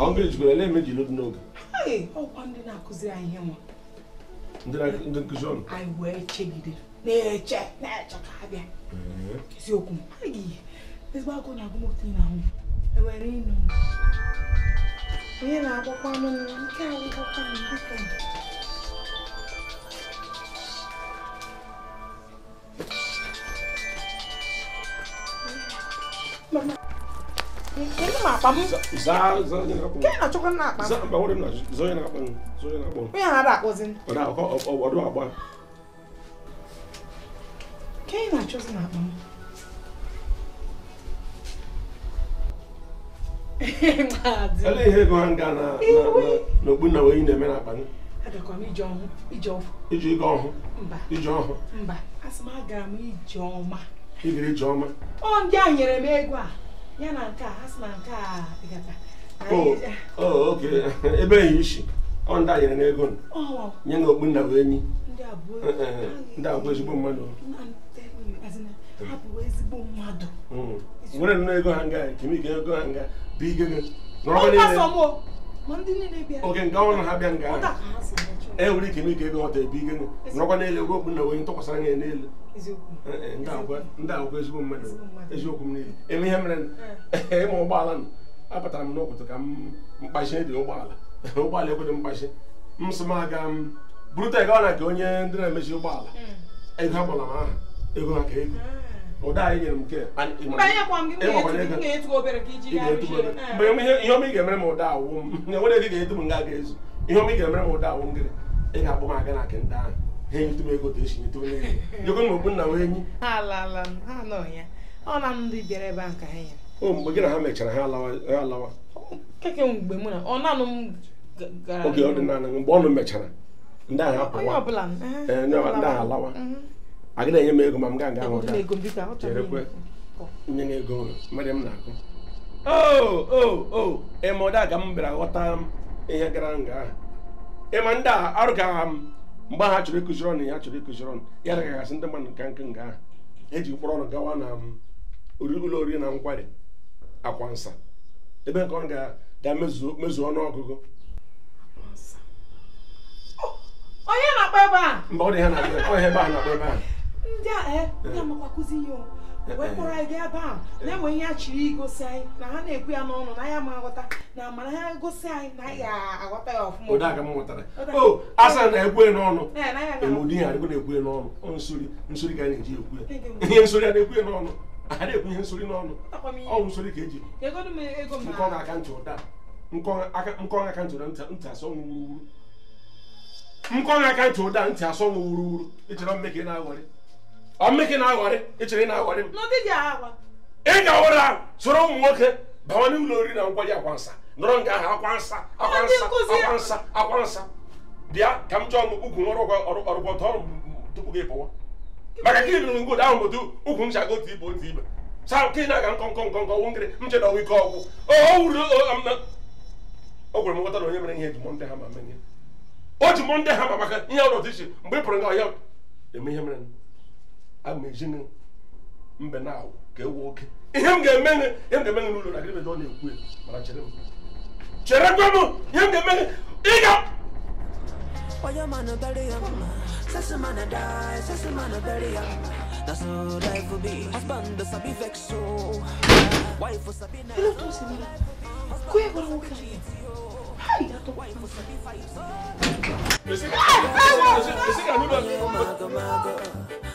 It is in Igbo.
ọ bụrụ na ele emeji n'otu n'oge ọkwa ndị na-akụziri anyị ihe nwa ndị nkụzi ọnụ anyị wee chegide na-eche na-eche ka ha bịa eziokwu m anyị na ahụ onye na-agbakwa anụ nke Kenapa apa mu? Za za yana kapo. Kenapa cokan na apa? Za ba wurin na zo yana kapo. Zo yana kapo. Me yana da ko zin? Ba da ko o do apa. Kenapa cokan na apa? Ele ihe go hanga na na ogbu na we na-eme na apa ni. Adakwa m ije ọhụ. Ije ọhụ. Ije ọhụ. Mba. Ije ọhụ. Mba. Asị m agara m ije ọma. ibiri Ijeọma ọ ndị a nyere m ego a ya na nke a ha na nke a oke ebe enyi isi ọ ndị a nyere ego nye na okpu nna bụ enyi ndị a ezigbo mmadụ nwere hmm. nnọọ ego ha nga kemike ego ha nga bụ ike gị oge nke ọrụ na ha bịa nga e nwere ike ime ka ego ọta ebe ike nọkwa n'elu ego okpu na onye ntụkwasara ya n'elu e, e, ndị agwa ezigbo mmadụ eziokwu m niile eme ihe mere eh. ịma ụgbọala nọ apụtara m n'ụkwụtụ ka m mkpachi dị ụgbọala ụgbọala ekwedo mkpachi m sị m aga m buru ego na nke onye ndị na-emechi ụgbọala hmm. ego ha kpọrọ m aha ego ha ka ego ah. ụda anyị nyere m nke ihe ọma ị ga-emere m ụda awụ m enwere dị ga-edu m nga ga-ezu ihe ọma ị ga-emere m ụda awụ m gịrị ị ga-akpọ m aga na nke ndị ahụ ha enyetụ ego esi onye m enyi o mgbe gị na ha mechara ha alawa mgbe oge ọ mgbe ọnụ mechara ndị ahụ apụwa a gị na-enye m ego ma m gaa nga nye m ego mmiri m na-akụ o ịma ụda ka m bịara ihe gara nga ahụ ịma ndị a arụgagha m mgbe ha chọrọ ịkụziri ọnụ ya chọrọ ịkụziri ọnụ ya dagagasị ndị mmadụ nke nga eji mkpụrụ ọnụ gawa na ụlọ oriri na nkwari akwa nsa ebe nke ọ ga ọnụ ọgụgụ onye na ebe a mgbe ọ dị ha na ebe ndị a eh, ndị amakwa kụzi ihe eh, eh, wee kpọrọ anyị gaa ebe a na-enwe ihe a chiri igosi anyị na ha na-ekwu ya n'ọnụ na ya ma aghọta na mana ha gosi anyị na ya aghọta ya ọfụma odaga m mụtara o asa oh, na ekwe n'ọnụ emudi ya adịgo na-ekwu n'ọnụ n'ọnụ nsori nsori ka na-eji ekwu ya ihe nsori a na-ekwu ya n'ọnụ a na-ekwu ihe nsori n'ọnụ ọnwụ nsori ka eji e nkọ aka ntị ụda nkọ aka ntị ụda ntị asọ nwụ wuruwuru nkọ aka ntị ụda ntị asọ nwụ wuruwuru ịchọrọ mme na-aghọrị ọmịkị na-aghọrị na-aghọrị m ị ga-awụra soro ụmụ nwoke bawa n'ụlọ oriri na nkwari akwansa nọrọ nga ahụ akwansa akwansa akwansa akwansa bịa ka m chọọ ukwu ọrụgwọta ọrụ tupu gị pụwa maka ka ahụ otu ukwu m chago ibe otu ibe saa nke na-aga nkọ nkọ nkọ nkọ m ọgwụ ike ọgwụ o na onye mere ihe ndị ha ma mee ihe o ji mọ ndị ha ma maka ihe ọrụ otu iche mgbe ị pụrụ nga ọhịa eme ihe mere amejin mbe na awụ ka ewu oke ihe m ga-eme ihe m ga-eme gị n'ụlọ na gịnị ọ na-ekwu mana chere m chere gwa m ihe m ga-eme gị ị ga Oyo mano bury him, sassy man a die, sassy man a bury him. That's how life be. Husband does be vex so. Wife was a be nice. Hello, Tosi. Kuya kwa wuka. Hi, dato. Missy, hey, hey, hey, hey, hey, hey, hey, hey, hey, hey, hey,